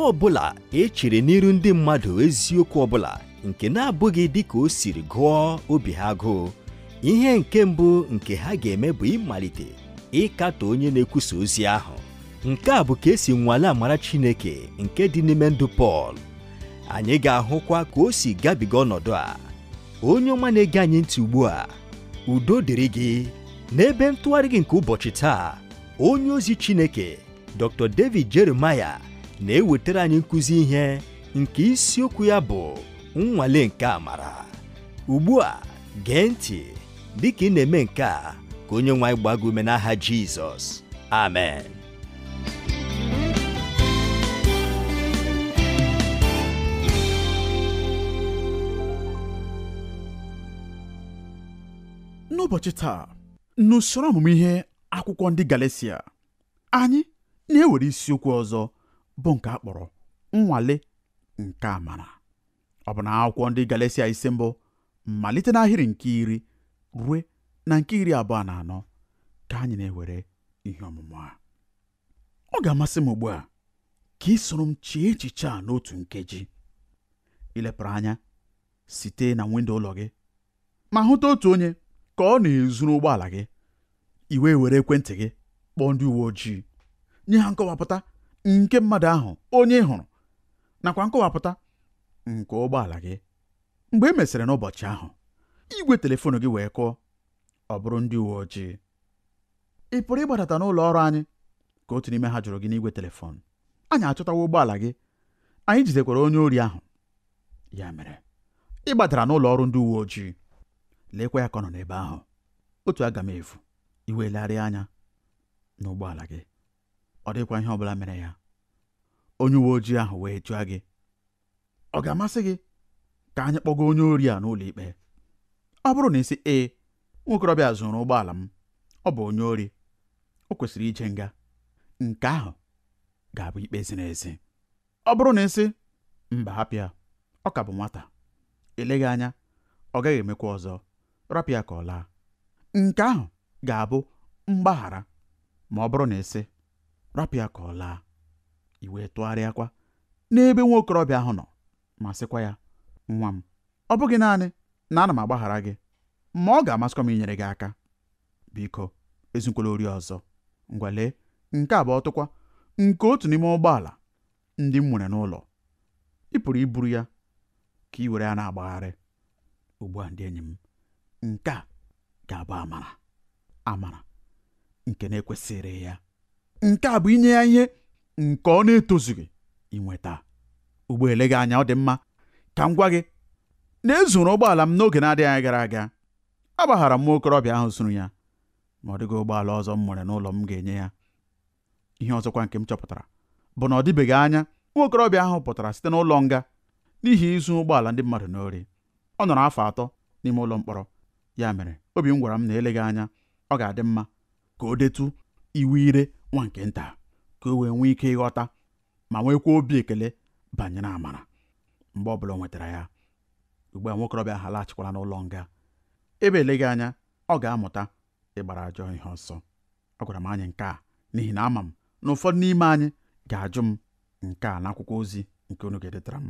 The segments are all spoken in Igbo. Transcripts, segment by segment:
ọ bụla echere n'iru ndị mmadụ eziokwu ọbụla nke na-abụghị dịka o siri gụọ obi ha agụụ ihe nke mbụ nke ha ga-eme bụ ịmalite ịkatọ onye na-ekwusa ozi ahụ nke a bụ ka esi nwale amara Chineke nke dị n'ime ndụ Pọl anyị ga-ahụkwa ka o si gabiga ọnọdụ a onye ọma na-ege anyị ntị ugbu a udo dịrị gị n'ebe ntụgharị gị nke ụbọchị taa onye ozi Chineke Dr. David Jeremiah na-ewetara anyị nkụzi ihe nke isiokwu ya bụ nnwale nke amara ugbu a gee ntị ka ị na-eme nke a ka onye nwe anyị gbago ume n'aha Jizọs amen n'ụbọchị taa n'usoro ọmụmụ ihe akwụkwọ ndị Galatia anyị na-ewere isiokwu ọzọ bụ nke a kpọrọ nnwale nke amara ọ bụ na akwụkwọ ndị Galatia isi mbụ malite n'ahịrị nke iri rue na nke iri abụọ na anọ ka anyị na-ewere ihe ọmụmụ a ọ ga-amasị m ugbu a ka ị soro m chee echiche a n'otu nkeji ilepụrụ anya site na windo ụlọ gị ma hụta otu onye ka ọ na-ezuru ụgbọala gị iwe were ekwentị gị kpọọ ndị uwe ojii nye ha nkọwapụta nke mmadụ ahụ onye ị hụrụ nakwa nkọwapụta nke ụgbọala gị mgbe e mesịrị n'ụbọchị ahụ igwe telefon gị wee kụọ ọ bụrụ ndị uwe ojii ị pụrụ ịgbadata n'ụlọ ọrụ anyị ka otu n'ime ha jụrụ gị n'igwe telefon anyị achọtawa ụgbọala gị anyị jidekwara onye ori ahụ ya mere ị gbadara n'ụlọ ọrụ ndị uwe ojii leekwa ya ka ọ nọ n'ebe ahụ otu aga m efu iwe anya n'ụgbọala gị ọ dịkwa ihe ọ bụla mere ya onye uwe ojii ahụ wee jụọ gị ọ ga-amasị gị ka anyị kpọga onye ori a n'ụlọ ikpe ọ bụrụ na ị sị ee nwokorobịa zụrụ ụgbọala m ọ bụ onye ori o kwesịrị ije nga nke ahụ ga-abụ ikpe ziri ezi ọ bụrụ na ị sị mba hapịa ọ ka bụ nwata eleghị anya ọ gaghị emekwa ọzọ rapịa ka ọ laa nke ahụ ga-abụ mgbaghara ma ọ bụrụ na ịsị sị rapụ ya ka ọ laa iwee tụgharịakwa n'ebe nwa okorobịa ahụ nọ ma sịkwa ya nwa m ọ bụghị naanị na ana m agbaghara gị ma ọ ga-amasịkwa m inyere gị aka biko ezukwala ori ọzọ ngwale nke a bụ ọtụkwa nke otu n'ime ụgbọala ndị m nwere n'ụlọ ị pụrụ iburu ya ka ị were ya na-agbagharị ugbu a ndị enyi m nke a ga-abụ amara amara nke na-ekwesịrị ya nke a bụ inye ya ihe nke ọ na-etozughị inweta ugbo eleghị gị anya ọ dị mma ka m gwa gị na ezuru ụgbọala m n'oge na-adịghị anya gara aga agbaghara m nwa okorobịa ahụ zuru ya ma ọ dịghị ụgbọala ọzọ m nwere n'ụlọ m ga-enye ya ihe ọzọkwa nke m chọpụtara bụ na ọ dịbeghị anya nwa okorobịa ahụ pụtara site n'ụlọ nga n'ihi izu ụgbọala ndị mmadụ n'ori ọ nọrọ afọ atọ n'ime ụlọ mkpọrọ ya mere obi m gwara m na eleghị anya ọ ga-adị mma ka o detu iwu ire nwa nke nta ka o wee nwee ike ịghọta ma nwekwa obi ekele banyere amara mgbe ọbụla o nwetara ya ugbu a nwokorobịa ha laghachikwala n'ụlọ nga ebe eleghị anya ọ ga-amụta ịgbara ajọ ihe ọsọ ọ gwara m anyị nke a n'ihi na ama m na ụfọdụ n'ime anyị ga-ajụ m nke a n'akwụkwọ ozi nke unu ga-edetara m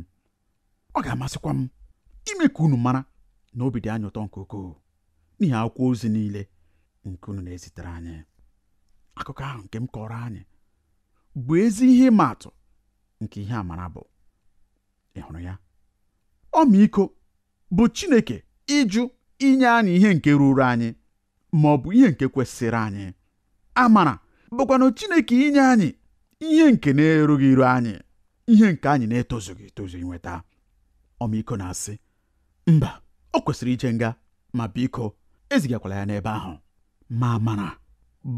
ọ ga-amasịkwa m ime ka unu mara na obi dị anya ụtọ nke ukwuu n'ihi akwụkwọ ozi niile nke unu na-ezitere anyị akụkọ ahụ nke m kọrọ anyị bụ ezi ihe ịma atụ nke ihe amara bụ ị hụrụ ya ọmịiko bụ Chineke ịjụ inye anyị ihe nke ruru anyị ma ọ bụ ihe nke kwesịrị anyị amara bụkwanụ Chineke inye anyị ihe nke na-erughị iru anyị ihe nke anyị na-etozughị etozu inweta ọmịiko na-asị mba ọ kwesịrị ije nga ma biko ezigakwala ya n'ebe ahụ ma amara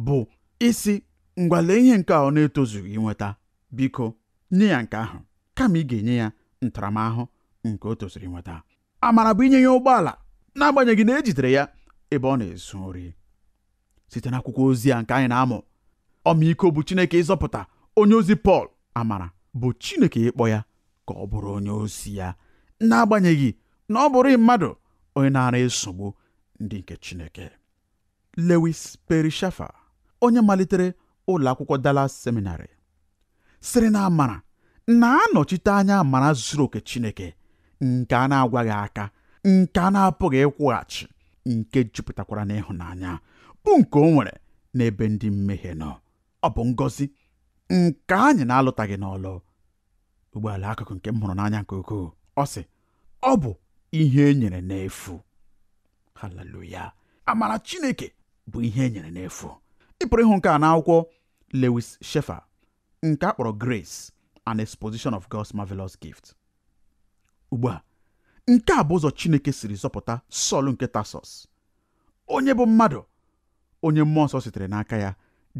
bụ isi ngwale ihe nke a ọ na-etozughị inweta biko nye ya nke ahụ kama ị ga-enye ya ntaramahụhụ nke o tozuru inweta amara bụ inye ya ụgbọala n'agbanyeghị na ejidere ya ebe ọ na-ezu nri site n'akwụkwọ ozi a nke anyị na-amụ ọmaiko bụ Chineke ịzọpụta onye ozi Pọl amara bụ Chineke ịkpọ ya ka ọ bụrụ onye ozi ya n'agbanyeghị na ọ bụrụ mmadụ onye na-ara esogbu ndị nke Chineke Lewis Perry onye malitere ụlọ akwụkwọ Dallas Seminary sịrị na amara na-anọchite anya amara zuru oke Chineke nke a na-agwaghị aka nke a na-apụghị ịkwụghachi nke jupụtakwara n'ịhụnanya bụ nke o nwere n'ebe ndị mmehie nọ ọ bụ ngọzi nke anyị na-alụtaghị n'ọlụ ụgbọala akụkụ nke m hụrụ n'anya nke ukwuu ọ sị ọ bụ ihe e nyere n'efu haleluya amara Chineke bụ ihe e nyere n'efu ị pụrụ ịhụ nke a n'akwụkwọ Lewis Sheffer nke a kpọrọ Grace an Exposition of God's Marvelous Gift ugbu a nke a bụ ụzọ Chineke siri zọpụta Sọl nke tasos onye bụ mmadụ onye mmụọ nsọ sitere n'aka ya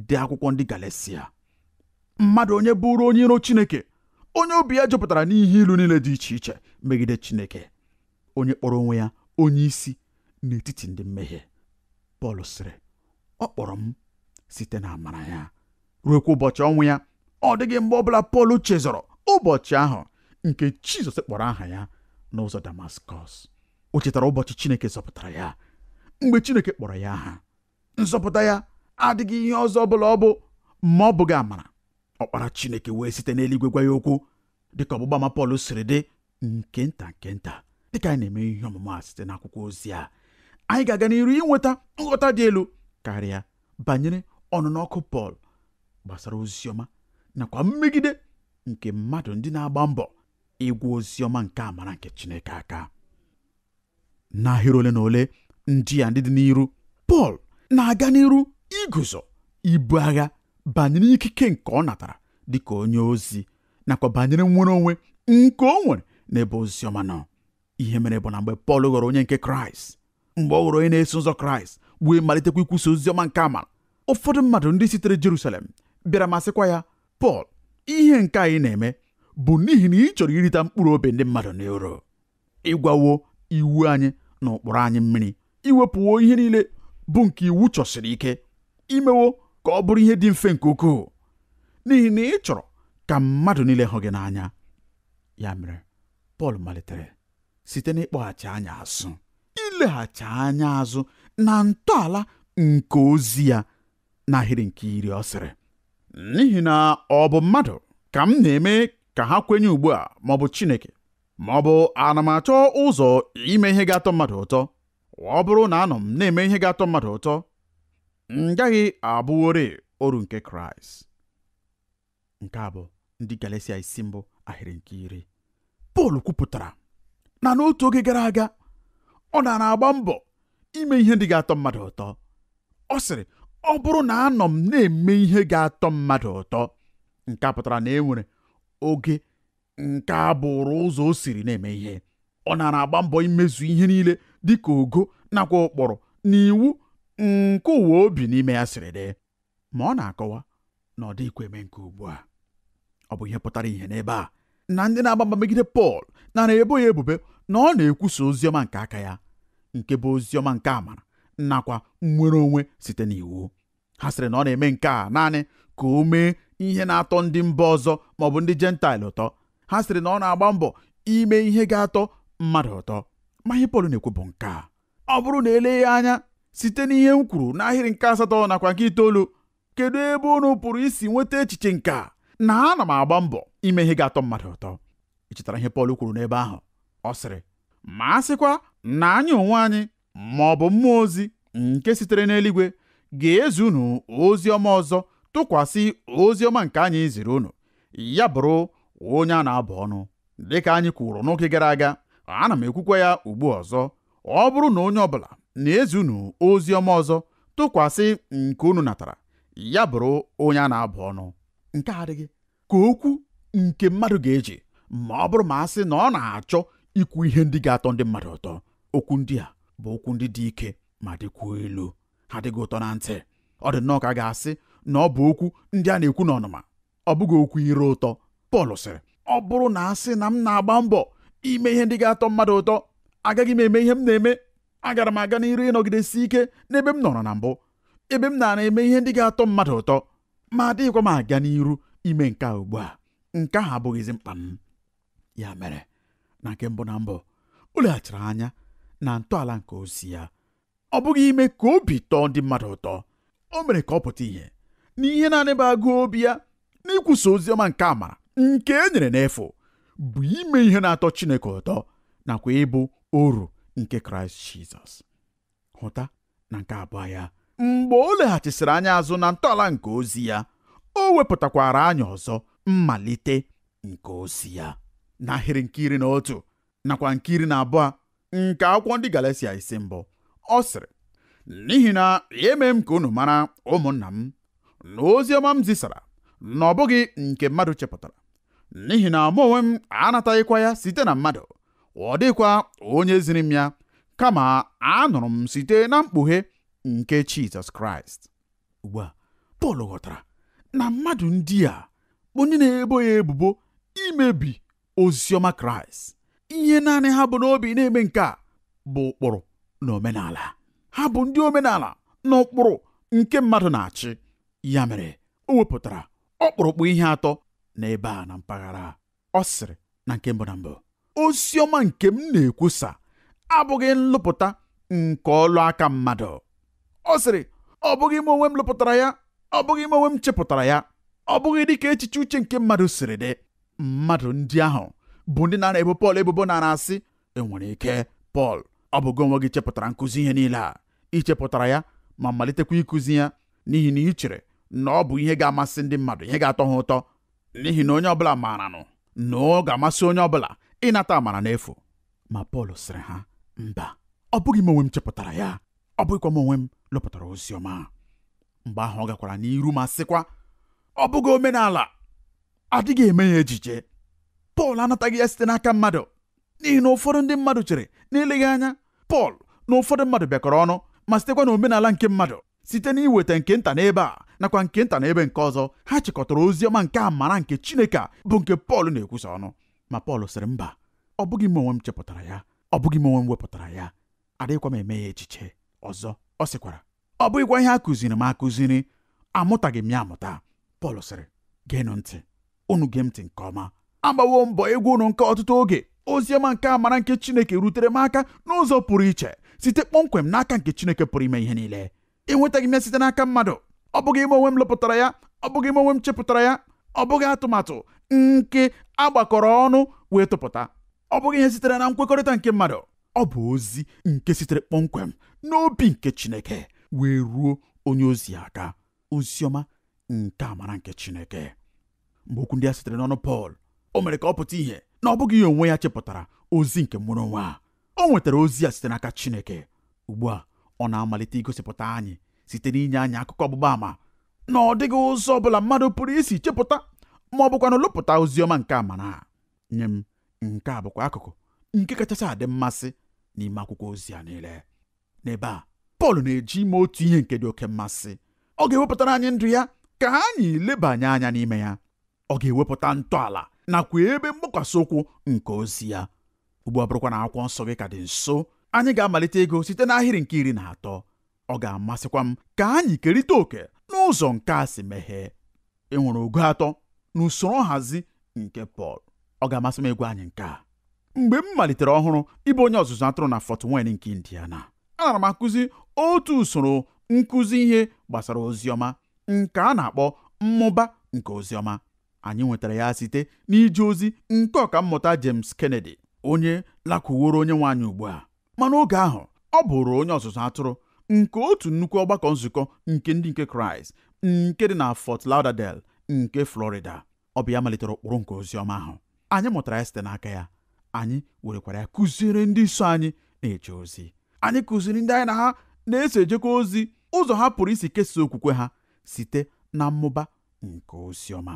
dị akwụkwọ ndị galesia mmadụ onye bụrụ onye iro Chineke onye obi ya jupụtara n'ihe ilu niile dị iche iche megide Chineke onye kpọrọ onwe ya onye isi n'etiti ndị mmehie Pọl sịrị ọ kpọrọ m site na amara ya ruokwa ụbọchị ọnwụ ya ọ dịghị mgbe ọbụla Pọl chezọrọ ụbọchị ahụ nke Jizọs kpọrọ aha ya n'ụzọ Damaskọs o chetara ụbọchị Chineke zọpụtara ya mgbe Chineke kpọrọ ya aha nzọpụta ya adịghị ihe ọzọ ọbụla ọ bụ ma ọ bụghị amara ọkpara Chineke wee site n'eluigwe gwa ya okwu dịka ọgbụgba ma Pọl siri dị nke nta nke nta dịka anyị na-eme ihe ọmụmụ a site n'akwụkwọ ozi a anyị ga-aga n'iru inweta nghọta dị elu karịa banyere ọnụnọ ọkụ Pọl gbasara oziọma nakwa mmegide nke mmadụ ndị na-agba mbọ ịgwa oziọma nke amara nke Chineke aka n'ahịrị ole na ole ndị a ndị dị n'iru Pọl na-aga n'iru iguzo ibu agha banyere ikike nke ọ natara dịka onye ozi nakwa banyere nwere onwe nke o nwere n'ebe oziọma nọ ihe mere bụ na mgbe Pọl ghọrọ onye nke Kraịst mgbe ọ ghọrọ onye na-eso ụzọ Kraịst wee malitekwa ikwusa oziọma nke amara ụfọdụ mmadụ ndị sitere Jerusalem bịara masịkwa ya Pọl ihe nke anyị na-eme bụ n'ihi na ị chọrọ irita mkpụrụ obi ndị mmadụ n'iro ịgwawo iwu anyị na ụkpụrụ anyị mmiri iwepụwo ihe niile bụ nke iwu chọsiri ike imewo ka ọ bụrụ ihe dị mfe nke ukwuu n'ihi na ị chọrọ ka mmadụ niile hụ gị n'anya ya mere Pọl malitere site n'ịkpọghachi anya azụ ileghachi anya azụ na ntọala nke ozi ya n'ahịrị nke iri ọ sịrị n'ihi na ọ bụ mmadụ ka m na-eme ka ha kwenye ugbu a ma ọ bụ Chineke ma ọ bụ ana m achọ ụzọ ime ihe ga-atọ mmadụ ụtọ ọ bụrụ na anọ m na-eme ihe ga-atọ mmadụ ụtọ m gaghị abụwori oru nke Kraịst nke a bụ ndị Galatia isi mbụ ahịrị nke iri Pọl kwupụtara na n'otu oge gara aga ọ na na-agba mbọ ime ihe ndị ga-atọ mmadụ ụtọ ọ sịrị ọ bụrụ na anọ m na-eme ihe ga-atọ mmadụ ụtọ nke a pụtara na e nwere oge nke a bụrụ ụzọ o siri na-eme ihe ọ nara agba mbọ imezu ihe niile dịka ogo nakwa ụkpụrụ na iwu nke ụwa obi n'ime ya siri dị ma ọ na-akọwa na ọ dịghịkwa eme nke ugbu a ọ bụ ihe pụtara ihe n'ebe a na ndị na-agba mba megide Pọl nara ebo ya ebubo na ọ na-ekwusa oziọma nke aka ya nke bụ oziọma nke amara nakwa nnwere onwe site n'iwu ha sịrị na ọ na-eme nke a naanị ka o mee ihe na-atọ ndị mba ọzọ maọbụ ndị jentaịl ụtọ ha sịrị na ọ na-agba mbọ ime ihe ga-atọ mmadụ ụtọ ma ihe Pọl na-ekwu bụ nke a ọ bụrụ na eleghị anya site n'ihe m kwuru n'ahịrị nke asatọ nakwa nke itoolu kedu ebe unu pụrụ isi nweta echiche nke a na ana m agba mbọ ime ihe ga-atọ mmadụ ụtọ ị chetara ihe Pọl kwuru n'ebe ahụ ọ sịrị ma a sịkwa na anyị onwe anyị ma ọ bụ mmụọ ozi nke sitere n'eluigwe ga ezunu unu ozi ọma ọzọ tụkwasị ozi ọma nke anyị ziri unu ya bụrụ onye a na-abụ ọnụ dịka anyị kwuru n'oge gara aga ana m ekwukwa ya ugbu ọzọ ọ bụrụ na onye ọbụla na ezunu unu ozi ọma ọzọ tụkwasị nke unu natara ya bụrụ onye a na-abụ ọnụ nke adịghị ka okwu nke mmadụ ga-eji ma ọ bụrụ ma a sị na ọ na-achọ ikwu ihe ndị ga-atọ ndị mmadụ ụtọ okwu ndị a bụ okwu ndị dị ike ma dịkwuo ilu ha dịghị ụtọ na ntị ọ dị nnọọ ka a ga-asị na ọ bụ okwu ndị a na-ekwu n'ọnụma ọ bụghị okwu ire ụtọ Pọl sịrị ọ bụrụ na a sị na m na-agba mbọ ime ihe ndị ga-atọ mmadụ ụtọ agaghị m eme ihe m na-eme agara m aga n'iru ịnọgidesi ike n'ebe m nọrọ na mbụ ebe m nara eme ihe ndị ga-atọ mmadụ ụtọ ma adịghịkwa m aga n'iru ime nke a ugbu a nke ahụ abụghịzi mkpa m ya mere na nke mbụ na mbụ o leghachiri anya na ntọala nke ozi ya ọ bụghị ime ka obi tọọ ndị mmadụ ụtọ o mere ka ọ pụta ihe na ihe na-anịba agụ obi ya n'ịkwụsa ozi ọma nke amara nke e nyere n'efu bụ ime ihe na-atọ Chineke ụtọ nakwa ịbụ oru nke Kraịst Jizọs hụta na nke abụọ ya mgbe o leghachisịrị anya azụ na ntọala nke ozi ya o wepụtakwara anyị ọzọ mmalite nke ozi ya n'ahịrị nke iri na otu nakwa nke iri na abụọ nke akwụkwọ ndị galacia isi mbụ ọ sịrị n'ihi na eme m ka unu mara ụmụnna m na ozi ọma m zisara na ọ bụghị nke mmadụ chepụtara n'ihi na mụ onwe m anataghịkwa ya site na mmadụ ọ dịkwa onye ziri m ya kama anụrụ m site na mkpughe nke Jizọs Kraịst ugbu a Pọl ghọtara na mmadụ ndị a onye na-ebo ya ebubo imebi oziọma Kraịst ihe naanị ha bụ n'obi na-eme nke a bụ ụkpụrụ na omenala ha bụ ndị omenala na ụkpụrụ nke mmadụ na-achị ya mere o wepụtara ọkpụrụkpụ ihe atọ n'ebe a na mpaghara ọ sịrị na nke mbụ na mbụ ozi nke m na-ekwusa abụghị nlụpụta nke ọlụ aka mmadụ ọ sịrị ọ bụghị m onwe m lụpụtara ya ọ bụghị m onwe m chepụtara ya ọ bụghị dịka echiche uche nke mmadụ siri dị mmadụ ndị ahụ bụ ndị na-ebo Pọl ebubo na asị enwere ike Pọl ọ gị onwe gị chepụtara nkụzi ihe niile a ichepụtara ya ma malitekwa ịkụzi ya n'ihi na ichere chere na ọ bụ ihe ga-amasị ndị mmadụ ihe ga-atọ ha ụtọ n'ihi na onye ọbụla maara nụ na ọ ga-amasị onye ọbụla ịnata amara n'efu ma Pọl sịrị ha mba ọ bụghị m onwe m chepụtara ya ọ bụghịkwa m onwe m lụpụtara ozi ọma mgbe ahụ ọ gakwara n'iru ma sịkwa ọ bụghị omenala adịghị eme ya ejije Pọl anataghị ya site n'aka mmadụ n'ihi na ụfọdụ ndị mmadụ chere n'eleghị anya Pọl na ụfọdụ mmadụ bịakọrọ ọnụ ma sitekwa n'omenala nke mmadụ site n'iweta nke nta n'ebe a nakwa nke nta n'ebe nke ọzọ ha chịkọtara ozi ọma nke amara nke Chineke a bụ nke Pọl na-ekwusa ọnụ ma Pọl sịrị mba ọ bụghị m onwe m chepụtara ya ọ bụghị m onwe m wepụtara ya adịghịkwa m eme ya echiche ọzọ ọ sịkwara ọ bụghịkwa ihe a kụziri m akụziri amụtaghị m ya amụta Pọl sịrị geenụ ntị unu gee m ntị nke ọma agbawo mbọ egwu unu nke ọtụtụ oge oziọma nke amara nke Chineke rutere m aka n'ụzọ pụrụ iche site kpọmkwem n'aka nke Chineke pụrụ ime ihe niile enwetaghị m ya site n'aka mmadụ ọ bụghị ime onwe m lụpụtara ya ọ bụghị ime onwe m chepụtara ya ọ bụghị atụmatụ nke agbakọrọ ọnụ wee tụpụta ọ bụghị ihe sitere na nkwekọrịta nke mmadụ ọ bụ ozi nke sitere kpọmkwem n'obi nke Chineke wee ruo onye ozi aka oziọma nke amara nke Chineke mgbe okwu ndị a sitere n'ọnụ Pọl o mere ka ọ pụta ihe na ọ bụghị ihe onwe ya chepụtara ozi nke mụrụ nwa o nwetara ozi ya site n'aka Chineke ugbu a ọ na-amalite igosipụta anyị site n'inye anyị akụkọ ọgbụgba ama na ọ dịghị ụzọ ọ bụla mmadụ pụrụ isi chepụta ma ọ bụkwa na lụpụta ozi ọma nke amara nye m nke a bụkwa akụkụ nke kachasị adị mmasị n'ime akwụkwọ ozi a niile n'ebe a Pọl na-eji ime otu ihe nke dị oke mmasị ọ ga-ewepụtara anyị ndụ ya ka anyị lebanye anya n'ime ya ọ ga-ewepụta ntọala nakwa ebe mgbakwasị ụkwụ nke ozi ya ugbu a bụrụkwa na akwụkwọ nsọ gị ka dị nso anyị ga-amalite ego site n'ahịrị nke iri na atọ ọ ga-amasịkwa m ka anyị kerịta òkè n'ụzọ nke a si meghee ị nwere ogo atọ na usoro nhazi nke Pọl ọ ga-amasị m ịgwa anyị nke a mgbe m malitere ọhụrụ ịbụ onye ọzụzụ atụrụ na Fort Wayne nke Indiana ana m akụzi otu usoro nkụzi ihe gbasara oziọma nke a na-akpọ mmụba nke oziọma anyị nwetara ya site n'ije ozi nke mmụta James Kennedy onye lakwuworo onye nwaanyị ugbu a mana oge ahụ ọ bụrụ onye ọzụzụ atụrụ nke otu nnukwu ọgbakọ nzukọ nke ndị nke Kraịst nke dị na Fort laudadel nke Florida ọ bụ ya malitere ụkpụrụ nke ozi ọma ahụ anyị mụtara ya site n'aka ya anyị werekwara ya kụziere ndị so anyị na-eje ozi anyị kụziri ndị anyị na ha na-eso ejekwa ozi ụzọ ha pụrụ isi kesaa okwukwe ha site na mmụba nke oziọma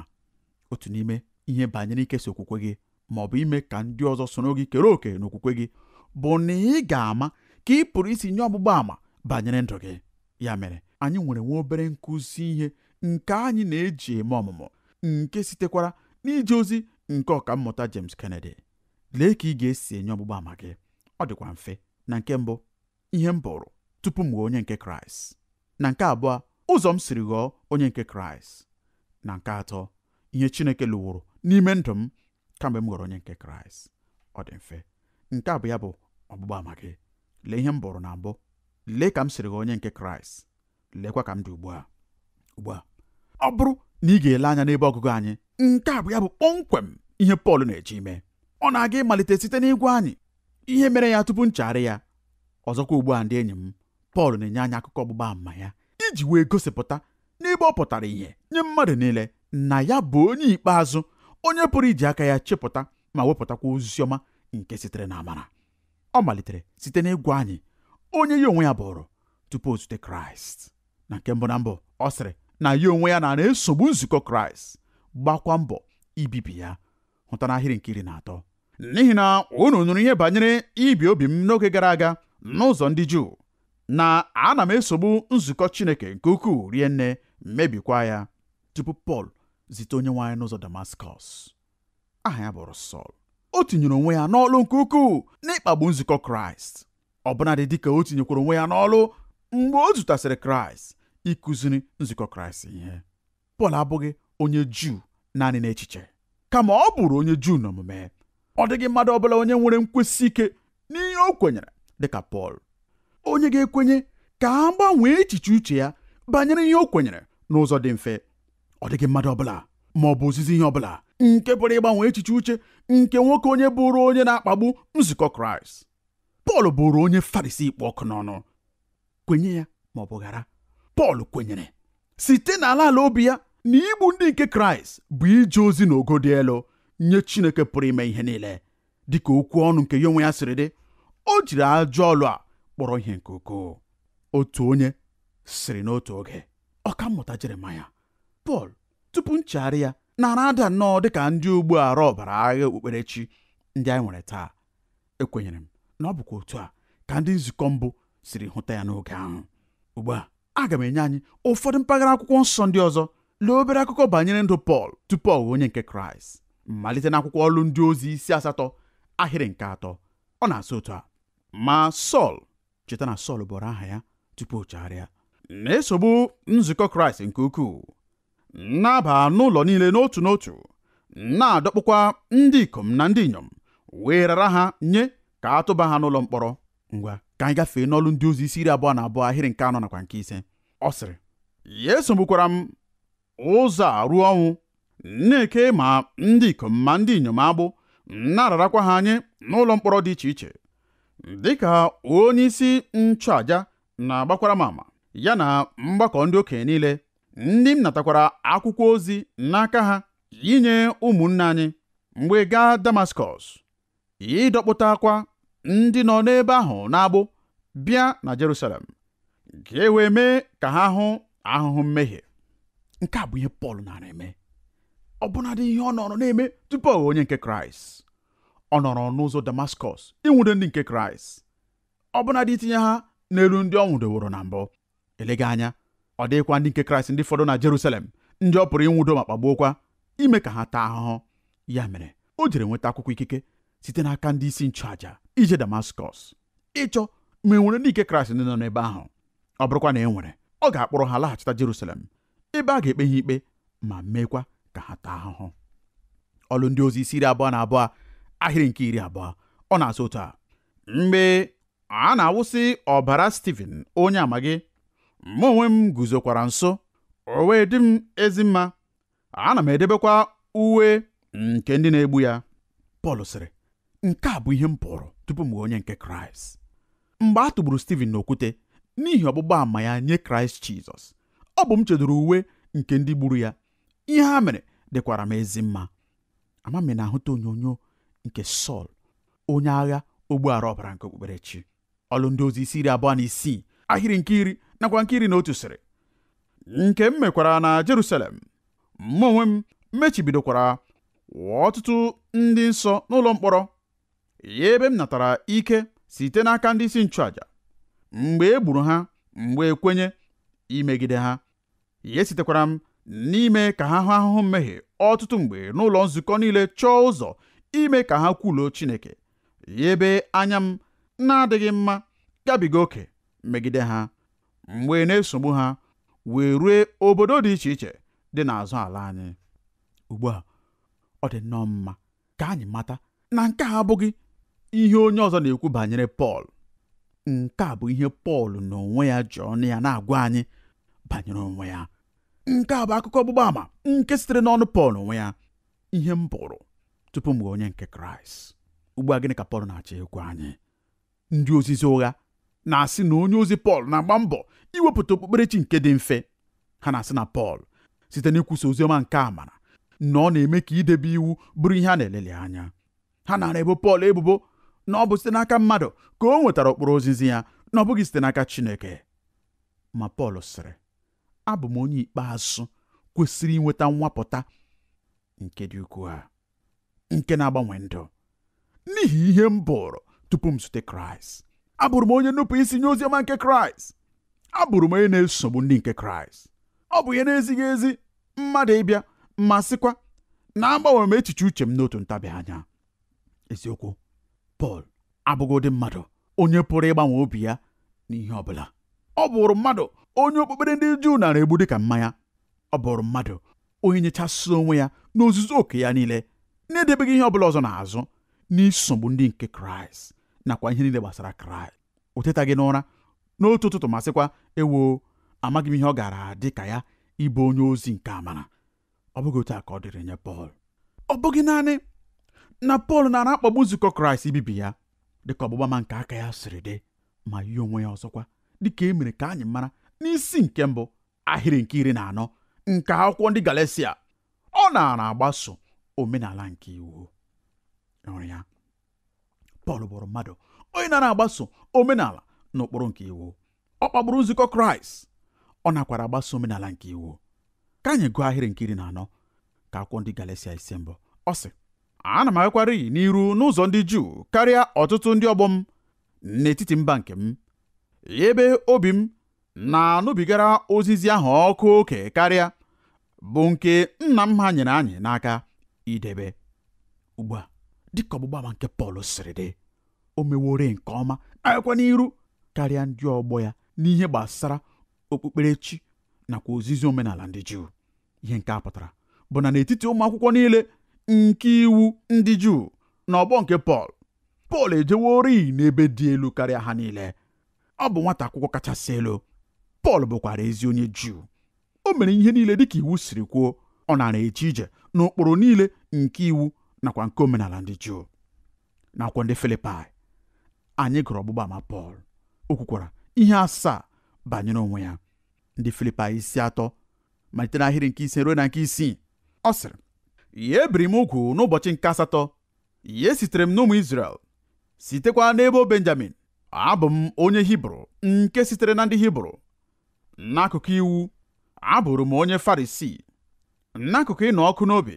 otu n'ime ihe banyere ikesa okwukwe gị ma ọ bụ ime ka ndị ọzọ soro gị kere òkè n'okwukwe gị bụ na ị ga-ama ka ị pụrụ isi nye ọgbụgba ama banyere ndụ gị ya mere anyị nwere nwa obere nkụzi ihe nke anyị na-eji eme ọmụmụ nke sitekwara n'ije ozi nke ọka mmụta James Kennedy lee ka ị ga-esi enye ọgbụgba ama gị ọ dịkwa mfe na nke mbụ ihe m bụrụ tupu m ghọọ onye nke Kraịst na nke abụọ ụzọ m siri ghọọ onye nke Kraịst na nke atọ ihe chineke lụworo n'ime ndụ m kamgbe m ghọrọ onye nke kraịst ọ dị mfe nke a bụ ya bụ ọgbụgba ama gị lee ihe m bụrụ na mbụ lee ka m siri gị onye nke kraịst leekwa ka m dị ugbu a ugbu a ọ bụrụ na ị ga-ele anya n'ebe ọgụgụ anyị nke a bụ ya bụ kpọmkwem ihe pọl na-eji ime ọ na-aga ịmalite site n'ịgwa anyị ihe mere ya tupu nchegharị ya ọzọkwa ugbu a ndị enyi m pọl na-enye anyị akụkọ ọgbụgba ama ya iji wee gosipụta n'ebe ọ pụtara ìhè nye mmadụ niile na ya bụ onye ikpeazụ onye pụrụ iji aka ya chepụta ma wepụtakwa ozi ọma nke sitere na amara ọ malitere site n'ịgwa anyị onye ya onwe ya bụrụ tupu o zute kraịst na nke mbụ na mbụ ọ sịrị na ya onwe ya na na-esogbu nzukọ kraịst gbakwa mbọ ibibi ya hụta n'ahịrị nke iri na atọ n'ihi na unu nụrụ ihe banyere ibi obi m n'oge gara aga n'ụzọ ndị juu na ana m esogbu nzukọ chineke nke ukwuu rie nne mebikwa ya tupu pọl zite onye nwaanyị n'ụzọ Damaskọs aha ya bụrụ Sọl o tinyere onwe ya n'ọlụ nke ukwuu n'ịkpagbu nzukọ Kraịst ọbụnadị dịka o tinyekwara onwe ya n'ọlụ mgbe o zutasịrị Kraịst ịkụziri nzukọ Kraịst ihe Pọl abụghị onye Juu naanị n'echiche kama ọ bụrụ onye Juu n'omume ọ dịghị mmadụ ọbụla onye nwere nkwesị ike n'ihe o kwenyere dịka Pọl onye ga-ekwenye ka a gbanwee echiche uche ya banyere ihe o kwenyere n'ụzọ dị mfe ọ dịghị mmadụ ọbụla ma ọ bụ ozizi ihe ọbụla nke pụrụ ịgbanwe echiche uche nke nwoke onye bụrụ onye na-akpagbu nzukọ kraịst pọl bụrụ onye farisi ikpọ ọkụ n'ọnụ kwenye ya ma ọ bụ ghara pọl kwenyere site na ala ala obi ya na igbu ndị nke kraịst bụ ije ozi ogo dị elu nye chineke pụrụ ime ihe niile dịka okwu ọnụ nke ya onwe ya siri dị o jiri ajọ ọlụ a kpọrọ ihe nke ukwuu otu onye siri n'otu oge ọkammụta jeremaya Pọl tupu nchegharị ya nara ada nnọọ ka ndị ogbu arụ ọbara agha okpukperechi ndị anyị nwere taa ekwenyere m na ọ bụkwa otu a ka ndị nzukọ mbụ siri hụta ya n'oge ahụ ugbu a aga m enye anyị ụfọdụ mpaghara akwụkwọ nsọ ndị ọzọ lee obere akụkọ banyere ndụ Pọl tupu ọ onye nke Kraịst malite n'akwụkwọ ọlụ ndị ozi isi asatọ ahịrị nke atọ ọ na-asị otu a ma Sọl cheta na Sọl bụrụ aha ya tupu o na-esogbu nzukọ Kraịst nke ukwuu na-aba n'ụlọ niile n'otu n'otu na-adọkpụkwa ndị ikom na ndị inyom wee rara ha nye ka a tụba ha n'ụlọ mkpọrọ ngwa ka anyị gafee n'ọlụ ndị ozi isi iri abụọ na abụọ ahịrị nke anọ nakwa nke ise ọ sịrị ya esogbukwara m ụzọ a ruo ọnwụ na-eke ma ndị ikom ma ndị inyom agbụ na-ararakwa ha nye n'ụlọ mkpọrọ dị iche iche dịka onye isi nchụaja na-agbakwara m ama ya na mgbakọ ndị okenye niile ndị m natakwara akwụkwọ ozi n'aka ha inye ụmụnne anyị mgbe gaa Damaskọs ịdọkpụtakwa ndị nọ n'ebe ahụ na abụ bịa na Jerusalem ka e wee mee ka ha hụ ahụhụ mmehie nke a bụ ihe Pọl nara eme ọbụnadị ihe ọ nọrọ na-eme tupu onye nke Kraịst ọ nọrọ n'ụzọ Damaskọs ịnwudo ndị nke Kraịst ọbụnadị itinye ha n'elu ndị ọ nwụdoworo na mbụ elega anya ọ dịghịkwa ndị nke kraịst ndị fọdụ na jerusalem ndị ọ pụrụ ịnwụdo ma kpagbuokwa ime ka ha taa ahụhụ ya mere o jere nweta akwụkwọ ikike site n'aka ndị isi nchụàja ije damaskọs ịchọ ma e nwere ndị nke kraịst ndị nọ n'ebe ahụ ọ bụrụkwa na e nwere ọ ga-akpọrọ ha laghachita jerusalem ebe a ga-ekpe ha ikpe ma meekwa ka ha taa ahụhụ ọlụ ndị ozi isi iri abụọ na abụọ ahịrị nke iri abụọ ọ na-asụ otu a mgbe a na-awụsị ọbara Stephen onye amaghị mụ onwe m guzokwara nso o wee dị m ezi mma ana m edebekwa uwe nke ndị na-egbu ya Pọl sịrị nke a bụ ihe m pụrụ tupu m onye nke Kraịst mgbe a tụgburu na n'okwute n'ihi ọgbụgba ama ya nye Kraịst Jizọs ọ bụ m chedoro uwe nke ndị gburu ya ihe ha mere dịkwara m ezi mma ama na-ahụta onyonyo nke Sọl onye agha ogbuala ọbara nke okpukperechi ọlụ ndị ozi isi iri abụọ na isii ahịrị nke iri nakwa nke iri na otu sịrị nke m mekwara na Jerusalem mụ onwe m mechibidokwara ọtụtụ ndị nsọ n'ụlọ mkpọrọ ya ebe m natara ike site n'aka ndị isi nchụaja mgbe egburu ha mgbe ekwenye imegide ha ya sitekwara m n'ime ka ha hụ ahụhụ mmehie ọtụtụ mgbe n'ụlọ nzukọ niile chọọ ụzọ ime ka ha kwuluo Chineke ya anya m na-adịghị mma gabiga oke megide ha mgbe na-esogbu ha wee rue obodo dị iche iche dị n'azụ ala anyị ugbu a ọ dị nnọọ mma ka anyị mata na nke a abụghị ihe onye ọzọ na-ekwu banyere Pọl nke a bụ ihe Pọl n'onwe ya ji ọnụ ya na-agwa anyị banyere onwe ya nke a bụ akụkọ ọgbụgba àmà nke sitere n'ọnụ Pọl onwe ya ihe m bụrụ tupu m onye nke Kraịst ugbu a gịnị ka Pọl na-achọ ịgwa anyị ndị ozizi ụgha na-asị na onye ozi Pọl na-agba mbọ iwepụta okpukperechi nke dị mfe ha na-asị na Pọl site n'ịkwusa oziọma nke amara na ọ na-eme ka idebe iwu bụrụ ihe a na-elele anya ha nara ebo Pọl ebubo na ọ bụ site n'aka mmadụ ka o nwetara ụkpụrụ ozizi ya na ọ bụghị site n'aka Chineke ma Pọl sịrị abụ m onye ikpeazụ kwesịrị inweta nwapụta nke dị ukwuu ha, nke na-agbanwe ndụ n'ihi ihe m bụrụ tupu m zute Kraịst abụrụ m onye nnupụ isi nye oziọma nke kraịst abụrụ m onye na-esogbu ndị nke kraịst ọ bụ ihe na-ezighị ezi mmadụ ịbịa ma sịkwa na agbanwe m echiche uche m n'otu ntabi anya eziokwu pọl abụghị ụdị mmadụ onye pụrụ ịgbanwe obi ya na ihe ọbụla ọ bụrụ mmadụ onye okpukpere ndị juu nara egbu dịka mmanya ọ bụrụ mmadụ onye nyechasị onwe ya n'ozuzu oke ya niile na-edebeghị ihe ọ bụla ọzọ n'azụ n'isogbu ndị nke kraịst nakwa ihe niile gbasara kraịst o gị n'ụra n'otu ụtụtụ masịkwa ewoo amaghị m ihe ọ gara dị ka ya ịbụ onye ozi nke amara ọ bụghị otu a ka ọ dịrị nye pọl ọ bụghị naanị na pọl nara akpagbu nzukọ kraịst ibibi ya dịka ọgbụgba ma nke aka ya siri dị ma yi onwe ya ọzọkwa dịka e mere ka anyị mara n'isi nke mbụ ahịrị nke iri na anọ nke akwụkwọ ndị galesia ọ na agbaso omenala nke iwu ya Pọl bụrụ mmadụ onye na agbaso omenala na ụkpụrụ nke iwu ọ kpagburu nzukọ kraịst ọ nakwara agbaso omenala nke iwu ka anyị gụọ ahịrị nkiri na anọ ka akwụkwọ ndị Galatia ise mbụ ọ sị ana m agakwariyi n'iru n'ụzọ ndị juu karịa ọtụtụ ndị ọgbọ m n'etiti mba nke m ebe obi m na-anụbigara ozizi ahụ ọkụ oke karịa bụ nke nna m ha nyere anyị n'aka idebe ugbu a dịka ọgbụgba ama nke Pọl siri dị o mewore nke ọma na n'iru karịa ndị ọgbọ ya n'ihe gbasara okpukperechi nakwa ozizi omenala ndị Juu ihe nke a pụtara bụ na n'etiti ụmụ akwụkwọ niile nke iwu ndị Juu na ọgbọ nke Pọl Pọl ejewori n'ebe dị elu karịa ha niile ọ bụ nwata akwụkwọ kachasị elu Pọl bụkwara ezi onye Juu o mere ihe niile dịka iwu siri kwuo ọ nara eche ije n'ụkpụrụ niile nke iwu nakwa nke omenala ndị juu nakwa ndị filipai anyị gụrụ ọgbụgba ama pọl o kwukwara ihe asaa banyere onwe ya ndị filipi isi atọ malite n'ahịrị nke ise ruo na nke isii ọ sịrị ya ebiri m ugwu n'ụbọchị nke asatọ ya sitere m n'ụmụ Izrel sitekwa n'ebo Benjamin abụ m onye Hibru nke sitere na ndị Hibru n'akụkụ iwu abụrụ m onye Farisii, n'akụkụ ịnọ ọkụ n'obi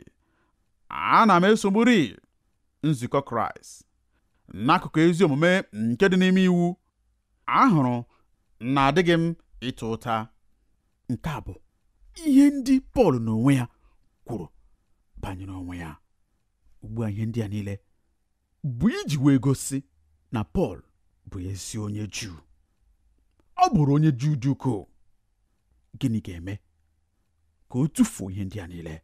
ana m esogburi nzukọ kraịst n'akụkụ ezi omume nke dị n'ime iwu ahụrụ na adịghị m ịta ụta nke a bụ ihe ndị pọl n'onwe ya kwuru banyere onwe ya ugbu a ihe ndị a niile bụ iji wee gosi na pọl bụ ezi onye juu ọ bụrụ onye juu dị gịnị ga-eme ka o tufuo ihe ndị a niile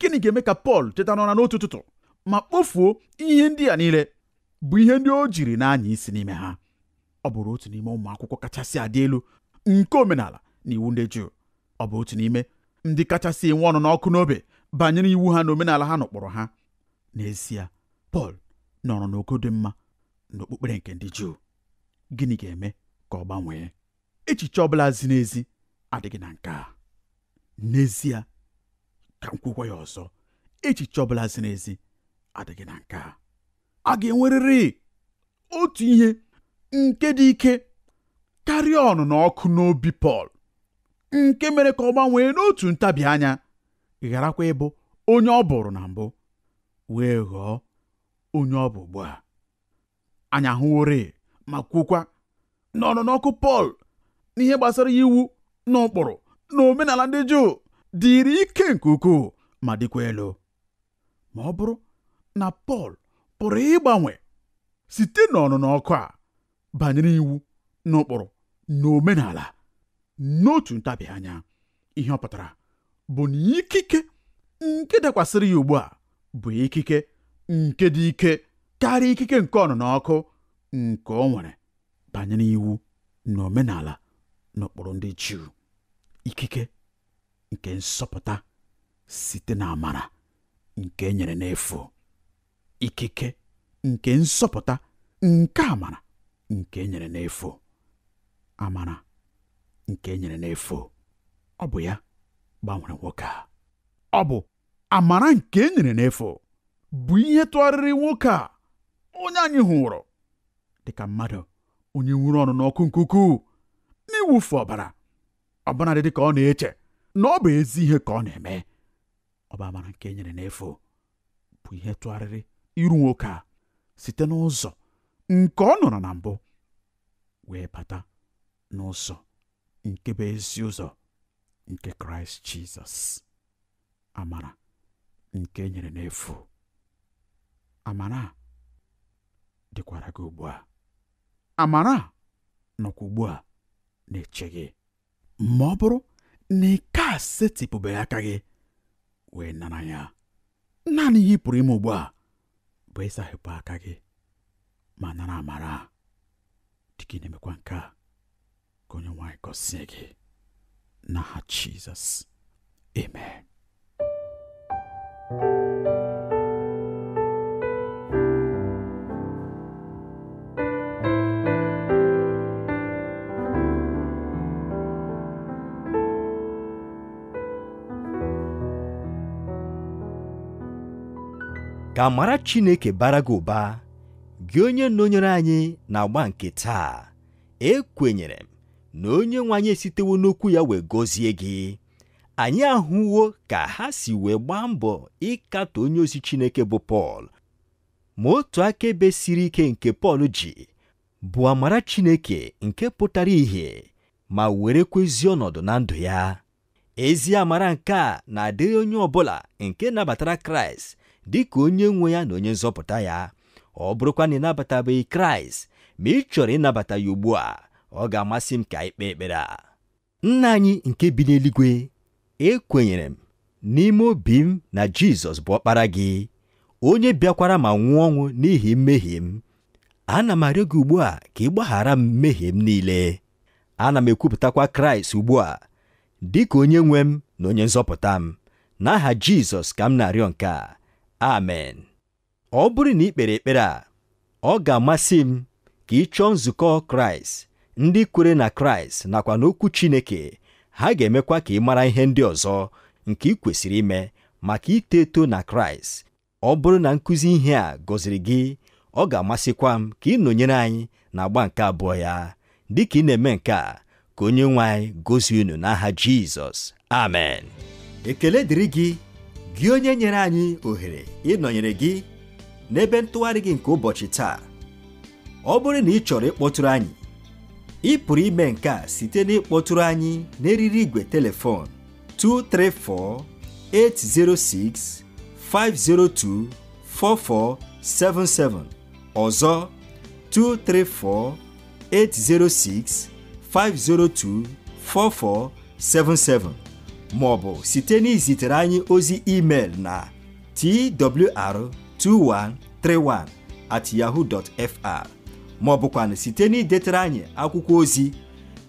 gịnị ga-eme ka Pọl teta n'ụra n'otu ụtụtụ ma kpofuo ihe ndị a niile bụ ihe ndị o jiri na-anya isi n'ime ha ọ bụrụ otu n'ime ụmụ akwụkwọ kachasị adị elu nke omenala na iwu ndị Juu ọ bụ otu n'ime ndị kachasị enwe ọnụ n'ọkụ n'obe banyere iwu ha na omenala ha nọkpọrọ ha n'ezie Pọl nọrọ n'ogo dị mma n'okpukpere nke ndị Juu gịnị ga-eme ka ọ gbanwee echiche ọ bụla zi n'ezi adịghị na nke a n'ezie ka m kwukwa ya ọzọ echiche ọ bụla ziri ezi adịghị na nke a a ga-enwerịrị otu ihe nke dị ike karịa ọnụnọkụ ọkụ n'obi Pọl nke mere ka ọ gbanwee n'otu ntabi anya gharakwa ịbụ onye ọ bụrụ na mbụ wee ghọọ onye ọ bụ ugbu a anyị ahụworị ma kwukwa na ọnụnọ ọkụ Pọl gbasara iwu na ụkpụrụ na omenala ndị Juu dịrị ike nke ukwuu ma dịkwa elu ma ọ bụrụ na Pọl pụrụ ịgbanwe site n'ọnụnọ ọkụ a banyere iwu na ụkpụrụ na n'otu ntabi anya ihe ọ pụtara bụ na ikike nke dakwasịrị ya ugbu a bụ ikike nke dị ike karịa ikike nke ọnụnọ ọkụ nke ọ nwere banyere iwu na omenala n'ụkpụrụ ndị Juu ikike nke nsọpụta site na amara nke e nyere n'efu ikike nke nsọpụta nke amara nke e nyere n'efu amara nke e nyere n'efu ọ bụ ya gbanwere nwoke a ọ bụ amara nke enyere nyere n'efu bụ ihe tụgharịrị nwoke a onye anyị hụrụ dịka mmadụ onye nwụrụ ọnụ n'ọkụ nke ukwuu ọbara ọbara dị dịka ọ na-eche na ọ bụ ezi ihe ka ọ na-eme ọba amara nke enyere nyere n'efu bụ ihe tụgharịrị iru nwoke a site n'ụzọ nke ọ nọrọ na mbụ wee bata n'ụzọ nke bụ ezi ụzọ nke kraịst jizọs amara nke enyere nyere n'efu amara dịkwara gị ugbu a amara nọkwa ugbu a na-eche gị ma ọ bụrụ na ike a setịpụbeghị aka gị wee nara ya naanị ihe ị pụrụ ime ugbu a bụ ịsahịpụ aka gị ma nara amara dịka ị na-emekwa nke a ka onye nwaanyị gọzie gị n'aha Jizọs emee. ka mara Chineke bara gị ụba gị onye nọnyere anyị na-agba nke taa ekwenyere m na onye nwe anyị esitewo n'okwu ya wee gọzie gị anyị ahụwo ka ha si wee gbaa mbọ ịkatọ onye ozi Chineke bụ Pọl ma otu akaebe siri ike nke Pọl ji bụ amara Chineke nke pụtara ìhè ma were ezi ọnọdụ na ndụ ya ezi amara nke a na-adịghị onye ọ bụla nke nabatara Kraịst dị ka onye nwe ya na onye nzọpụta ya ọ bụrụkwa na ị nabatabeghị kraịst ma ị chọrọ ịnabata ya ugbu a ọ ga-amasị m ka anyị kpee ekpere a nna anyị nke bi n'eluigwe ekwenyere m n'ime obi m na jizọs bụ ọkpara gị onye bịakwara ma nwụọ ọnwụ n'ihi mmehie m ana m arịọ gị ugbu a ka ị gbaghara m mmehie m niile ana m ekwupụtakwa kraịst ugbu a dị ka onye nwe m na onye nzọpụta m n'aha jizọs ka m na-arịọ nke a amen ọ bụrụ na ị kpere ekpere a ọ ga-amasị m ka ị chọọ nzukọ kraịst ndị kwere na kraịst nakwa n'okwu chineke ha ga-emekwa ka ị mara ihe ndị ọzọ nke ị kwesịrị ime maka ito eto na kraịst ọ bụrụ na nkụzi ihe a gọziri gị ọ ga-amasịkwa m ka ị nọnyere anyị na agba nke abụọ ya dịka ị na-eme nke a ka onye nwe anyị gozie unu n'aha jizọs amen ekele dịrị gị gị onye nyere anyị ohere ịnọnyere gị n'ebe ntụgharị gị nke ụbọchị taa ọ bụrụ na ị chọrọ ịkpọtụrụ anyị ị pụrụ ime nke a site na ịkpọtụrụ anyị n'eriri igwe telefon 234-806-502-4477 ọzọ 234-806-502-4477 maọbụ site na izitere anyị ozi email na twr2131 at yahoo.fr ma site na idetere anyị akwụkwọ ozi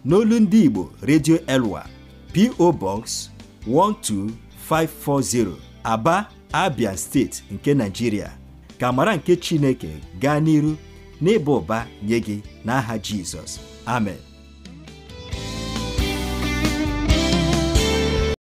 n'olu ndị Igbo redio Elwa PO Box 12540 Aba Abia steeti nke Nigeria ka mara nke Chineke gaa n'iru n'ịba ụba nye gị n'aha Jizọs amen